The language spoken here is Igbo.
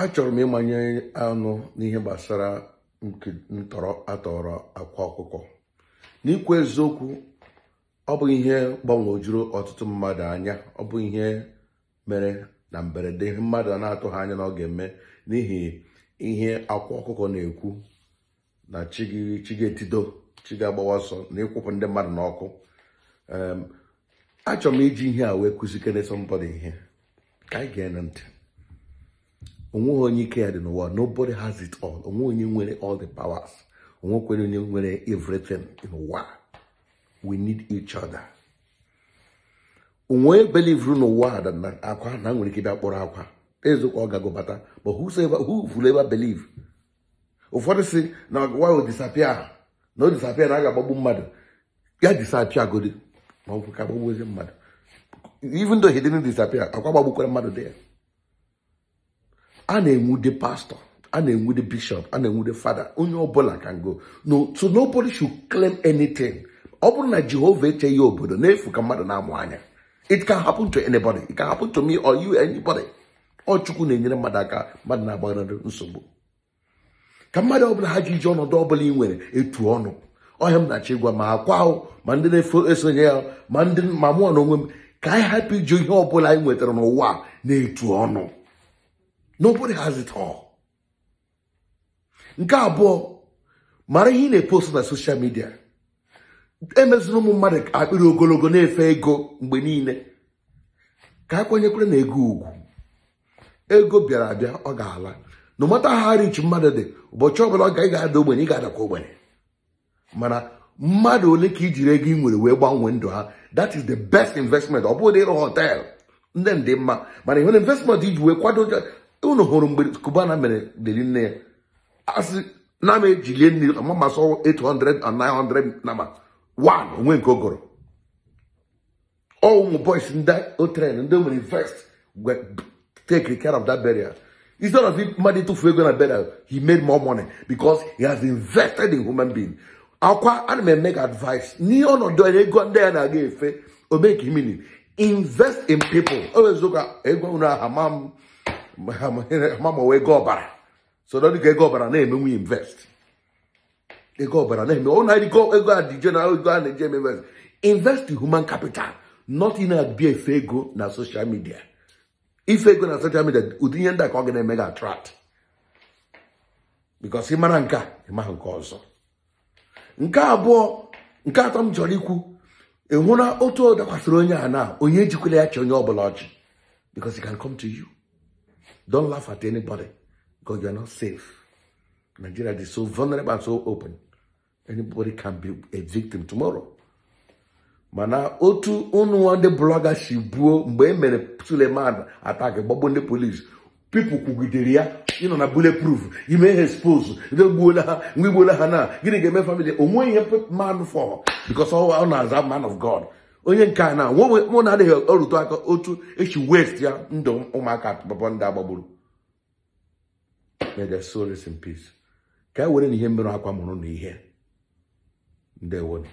achọrọ m ịmanye anụ n'ihe gbasara ntọrọ atọrọ akwa ọkụkọ n'ikwu eziokwu ọ bụ ihe gbanwojuru ọtụtụ mmadụ anya ọ bụ ihe mere na mberede mmadụ mmadụ na-atụghị anya na ọ ga-eme n'ihi ihe akwa ọkụkọ na-ekwu na chi ga-etido agbawa ọsọ na ịkwụpụ ndị mmadụ n'ọkụ achọrọ m iji ihe a wee kụzikere sọmbọdụ ihe ka anyị ntị onweghị onye ike ya dị n'ụwa nobody has it all onwe onye nwere all the powers onwekwere onye nwere everything in ụwa we need each other onwe belivru n'ụwa na akwa na nwere ike bịa kpọrọ akwa ezokwa ọ gago bata but who vụrụ ebe believe ụfọdụ si na ọgụwa disapia na o disapia na a ga-agbagbu mmadụ ya disapia godi ma ọ bụ ka mmadụ even though he didn't disappear akwa gbagbukwara mmadụ dị ya a na-enwude pastọ a na-enwude bishọp a na-enwude fada onye ọbụla ka ngo no so nobody should claim anything ọ bụrụ na jehova echeghị obodo n'efu ka mmadụ na-amụ anya it can happen to anybody it can happen to me or you anybody ọ chukwu na-enyere mmadụ aka mmadụ na-agbaghara nsogbu ka mmadụ ọbụla ha ji iji ọnọdụ ọbụla ị nwere etu ọnụ ọhịa m na-achọ ịgwa ma akwa ma ndị na-efo esonye ya ma ndị ma mụọ na onwe m ka anyị hapụ iju ihe ọbụla anyị nwetara n'ụwa na-etu ọnụ nobody has it all. nke abụọ mara ihe ị na-epost na soshal midia emezina ụmụ mmadụ akpịrị ogologo na-efe ego mgbe niile ka a kwenyekwere na ego ugwu ego bịara abịa ọ ga-ala na ha richi mmadụ dị ụbọchị ọbụla ọ ga ị ga-ada ogbenye ị ga-adakwa ogbenye mana mmadụ ole ka ijiri ego ị nwere wee gbanwee ndụ ha that is the best investment ọ bụghị ịrụ họteelụ ndị ndị mma mana ihe na investment iji wee kwado unu hụrụ mgbe kubana mere deri nne ya asị na m ejilie mmiri ama 800 and 900 nama one onwe nke ogoro ụmụ boys ndị otren ndị nwere invest take care of that burial instead of mmadụ ịtụfu ego na burial he made more money because he has invested in human being akwa ana m eme ga advice n'ihe ọnọdụ ego ndị ya na-aga efe omeke imini invest in people o wezuga ego unu aha ma m gbanwe ego ọbara sodo dịka ego ọbara na-emenwu invest ego ọbara na-eme ụna ego ego a dị general ego a na-eji eme invest invest human capital not in abia ife ego na social media ife ego na social media ụdị ihe ndị a ka ọ ga na-eme ga attract ị mara nke a nke ọzọ nke abụọ nke atọ m chọrọ ikwu ịhụ na otu ọ dakwasịrị onye a na onye ejikwala ya chi onye ọ bụla ọchị because to you. Don't laugh at anybody because you are not safe. Nigeria is so vulnerable and so open. Anybody can be a victim tomorrow. mana otu ụnụnwa ndị blọga si buo mgbe e mere Suleman attack gbagbo ndị polisi pipụl kwugidere ya ịnọ na bulletproof ime ha expose gbuola ha mgbe igbuola ha na gịnị ga-eme famili onweghị ihe man fọ because na-aza man of God onye nke a na mụ na adịghị ọrụtụ aka otu echi west ya ndụ ụmụaka papa ndị agbagburu may their soul peace ka e were na ihe mmerụ akwa mụrụ na ihe ndewonu